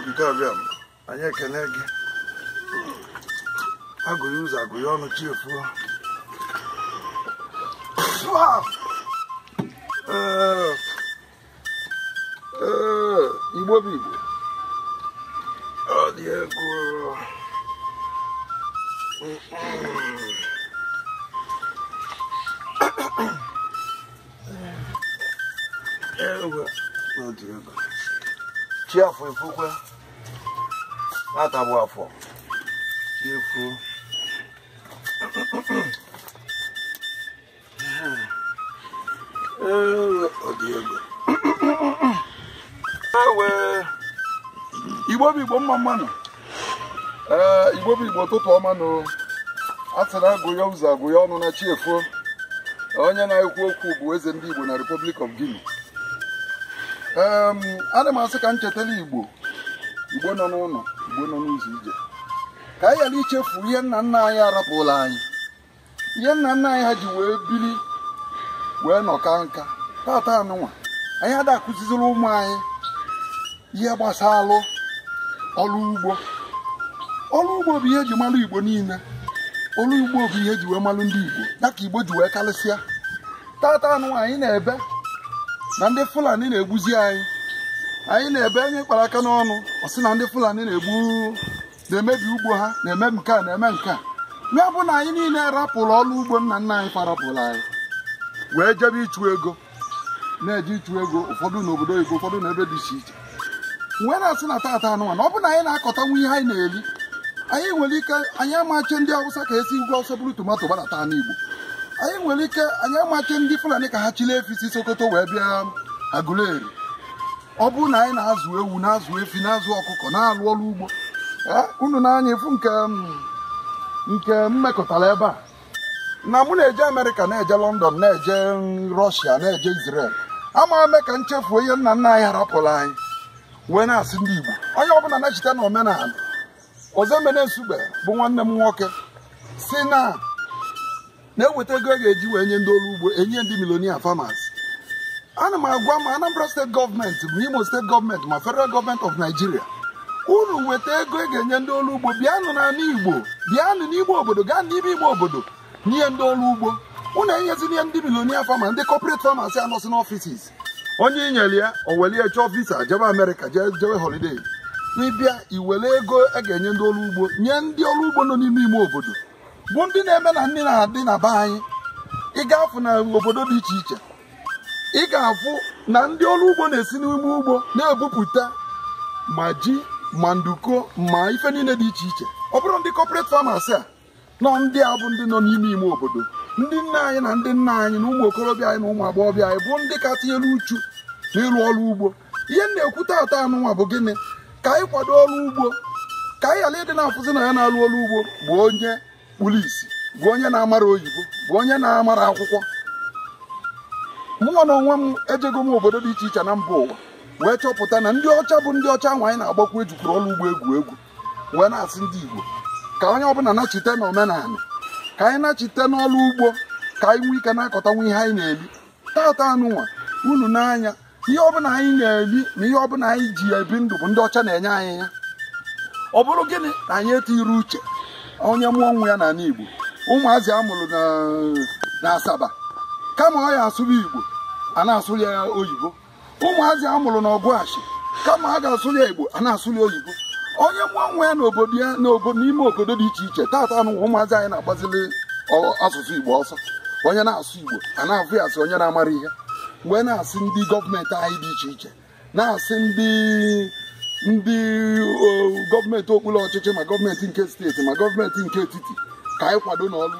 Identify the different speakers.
Speaker 1: ogige ọbịa anyị ekene gị agụghị ụzọ agụghị ọnụ chiefuo igbo bụ igbo chi afọ efukwe nwata bụ afọ chi efu igbo bụ igbo mma mmanụ ee igbo bụ igbo ụtụtụ ọmanụ, nụ a na agụ ụzọ agụ ọnụ na chi efuo onye na-ekwu okwu bụ eze ndị igbo na Republic of Guinea ana m asị ka m chetara igbo igbo nọ n'ụlọ igbo nọ n'ụzọ ije ka anyị ghara ichefu ihe nna nna anyị arapụla anyị ihe nna nna anyị ha ji wee biri wee nọka nka tata anụnwa anyị ada ụmụ anyị ihe gbasara ọrụ ugbo ọrụ ugbo bụ ihe eji malụ igbo niile ọrụ ugbo bụ ihe eji wee malụ ndị igbo ya ka igbo ji wee karịsịa tata anụnwa anyị na-ebe na ndị fulani na-egbuzi anyị anyị na-ebe anyị kpara aka n'ọnụ ọ sị na ndị fulani na-egbu na-emebi ugbo ha na-eme nke a na-eme nke a ya bụ na anyị niile rapụrụ ọrụ ugbo nna nna anyị farapụrụ anyị wee jebe ịchụ ego na-eje ịchụ ego ụfọdụ n'obodo Igbo ụfọdụ n'ebe dị iche iche wee na-asị na tata anụmanụ ọ bụ na anyị na-akọtanwu ihe anyị na-eri anyị nwere ike anyị amachi ndị awụsa ka esi ugwu ọsọ bụrụ tomato gbadata n'igbo anyị nwere ike anyị amaghị ndị Fulani ka ha chiri efi si Sokoto wee bịa Aguleri ọ bụrụ na anyị na-azụ ewu na-azụ efi na-azụ ọkụkọ na-alụ ọrụ ugbo e, unu na-anya efu nke nke mmekọtara ebe a na mụ na-eje Amerịka na-eje London na-eje Rọshia na-eje Izrel ama eme ka nchefuo ihe nna nna anyị harapụrụ anyị wee na-asị ndị Igbo onye ọbụla na-echeta na omenala Ozemene Nsugbe bụ nwanne m nwoke si na na-eweta ego ga-eji wee nye ndị ọrụ ugbo enye ndị milonia farmers ana m agwa ma Anambra steeti gọọmenti ma Imo steeti gọọmenti ma federal gọọmenti of Nigeria unu weta ego e ga-enye ndị ọrụ ugbo bịanụ na Igbo bịanụ n'igbo obodo gaa n'ime ime obodo nye ndị ọrụ ugbo unu enyezina ihe ndị milonia farmers ndị corporate anọsi anọsị n'ọfisis onye inyere ya o chọọ visa jebe Amerịka jebe holiday n'ịbịa iwere ego a e ga-enye ndị ọrụ ugbo nye ndị ọrụ ugbo nọ n'ime ime obodo bụ ndị na-eme na ndị na-adị na be anyị ị ga-afụ na obodo dị iche iche ị ga-afụ na ndị ọrụ ugbo na-esi n'ime ugbo na-ebupụta ma ji ma nduko ma ife niile dị iche iche ọ bụrụ ndị corporate famasi a nọ ndị a bụ ndị nọ n'ime ime obodo ndị nne anyị na ndị nna anyị na ụmụ okorobịa anyị na ụmụ agbọghọbịa anyị bụ ndị ka tinyere uchu n'ịrụ ọrụ ugbo ihe m na-ekwu taata anụnwa bụ gịnị ka anyị kwado ọrụ ugbo ka anyị ghara ịdị na-afụzi na ya na-arụ ọrụ ugbo bụ onye kpuru isi bụ onye na-amara oyibo bụ onye na-amara akwụkwọ Mụ na onwe m ejego m obodo dị iche iche na mba ụwa wee chọpụta na ndị ọcha bụ ndị ọcha ahụ na-agbakwa ejukwuru ọrụ ugbo egwu egwu wee na-asị ndị igbo ka onye ọbụla nachite na omenala ka anyị nachite n'ọrụ ugbo ka anyị nwee ike na-akọtanwu ihe anyị na-eli tata anụnwa unu n'anya ihe ọbụla anyị na-eli na ihe ọbụla anyị ji ebi ndụ bụ ndị ọcha na-enye anyị ya ọ bụrụ gịnị na anyị etighịrị uche onye mụọ nwa ya n'ala Igbo ụmụazị amụrụ mụrụ na Asaba kama ọ ya asụrụ Igbo a na-asụrụ ya oyibo ụmụazị amụrụ mụrụ na Ọgụashi kama a ga-asụrụ ya Igbo a na-asụrụ ya oyibo onye mụọ nwa ya n'obodo ya n'ime obodo dị iche iche tata anụ ụmụazị anyị na-agbazili asụsụ Igbo ọsọ onye na-asụ Igbo a na-afụ ya asị onye na-amara ihe mgbe na-asị ndị gọọmenti anyị dị iche iche na-asị ndị ndị uh, gọọmenti okpuru ọchịchị ma gọọmenti nke steeti ma gọọmenti nke etiti ka anyị kwado n'ọrụ